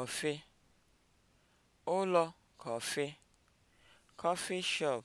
kọfị, ụlọ kọfị, coffee shop